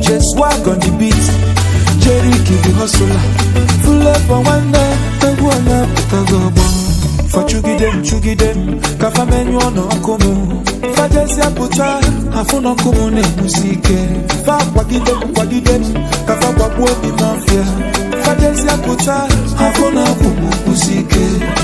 Jè swak an di bit, jè riki di nosola Fule pwa wane, te wana pe kagoban Fa chugidem, chugidem, kafa menyo an ankomou Fa jè si apotar, anfon ankomou ne mousike Fa wakidem, wakidem, kafa wakwepi nan fya Fa jè si apotar, anfon ankomou mousike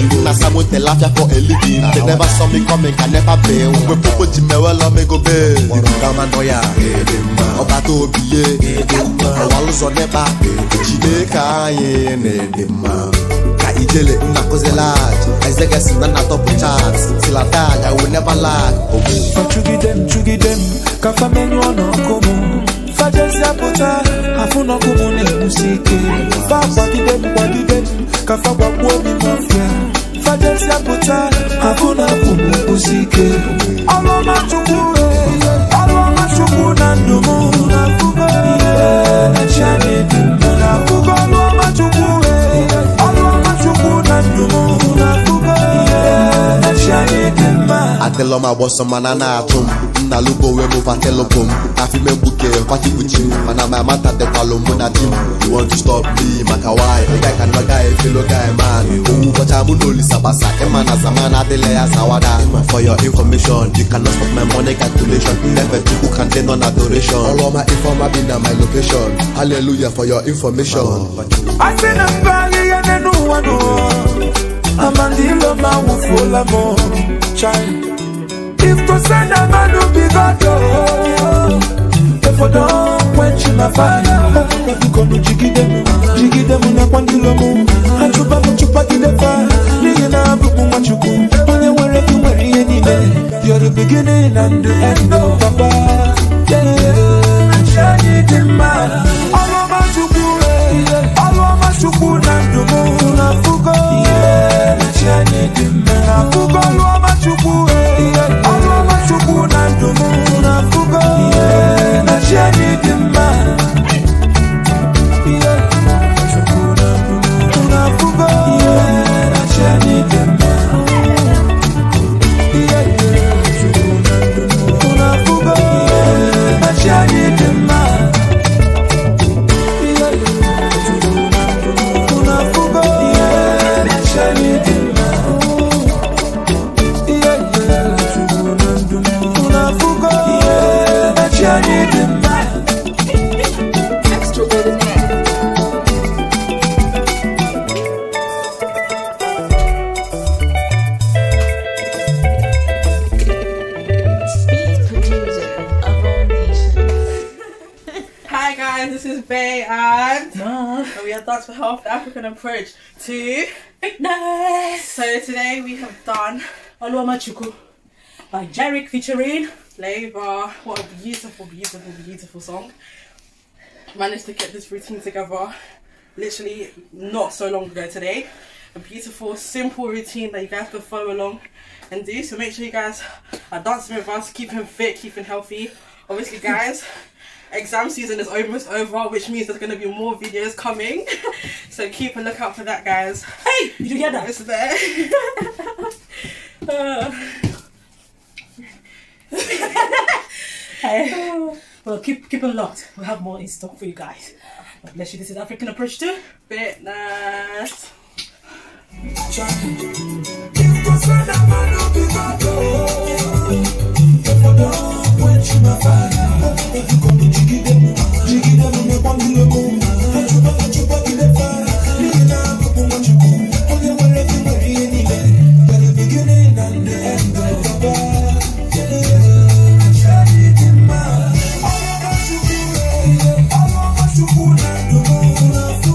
living. Now someone tell after for a living. They ah, never ah. saw me coming, can never bail. Ah, We popo jime well, me go bail. You got my noya, ọba tó bìyẹ, ọwà ló sọ nípa, jìde káyé nìdìmọ̀. Ka ijele nna kuzi laaj, Isaac na na top chart, till I die I will never lag. Fachugidem, chugidem, kafa menyu ọ̀nà kòmù fajesi apota afuna kumune musike fagwadidem gwadidem kafagwakuomi 不在。Tell my boss some manana at home. Na lugo we move a tell home. I feel me buke kwati kuchi. Mana my mata de kwalo muna I You want to stop me makawai. The guy can guy fellow guy man. Umu kocha munoli sabasa. Emana zamana dele ya sawada. For your information, you cannot stop my money calculation. Never think who can deny adoration. All of my informer been at my location. Hallelujah for your information. I see them valley and then no one. I'm a dealer, man, with oh, full of more. Child. if to send a man to be God, oh, if for don't quench my fire, if you come to jiggy them, jiggy them in a quantilo, and you babble to party the fire, lay in a book on what you go, and you were ready, you're the beginning and the end of oh, Papa. Yeah, yeah. Coupe guys, this is Bay and we have Dance for Health, the African approach to fitness. So today we have done Alua Machuku by Jarek featuring Laver. What a beautiful, beautiful, beautiful song. Managed to get this routine together literally not so long ago today a beautiful, simple routine that you guys can follow along and do. So make sure you guys are dancing with us, keeping fit, keeping healthy. Obviously, guys, exam season is almost over, which means there's going to be more videos coming. so keep a lookout for that, guys. Hey, you hear that? It's there. uh. hey. Well, keep keep it locked. We'll have more in stock for you guys. God bless you. This is African approach to fitness. All of us to put out the moon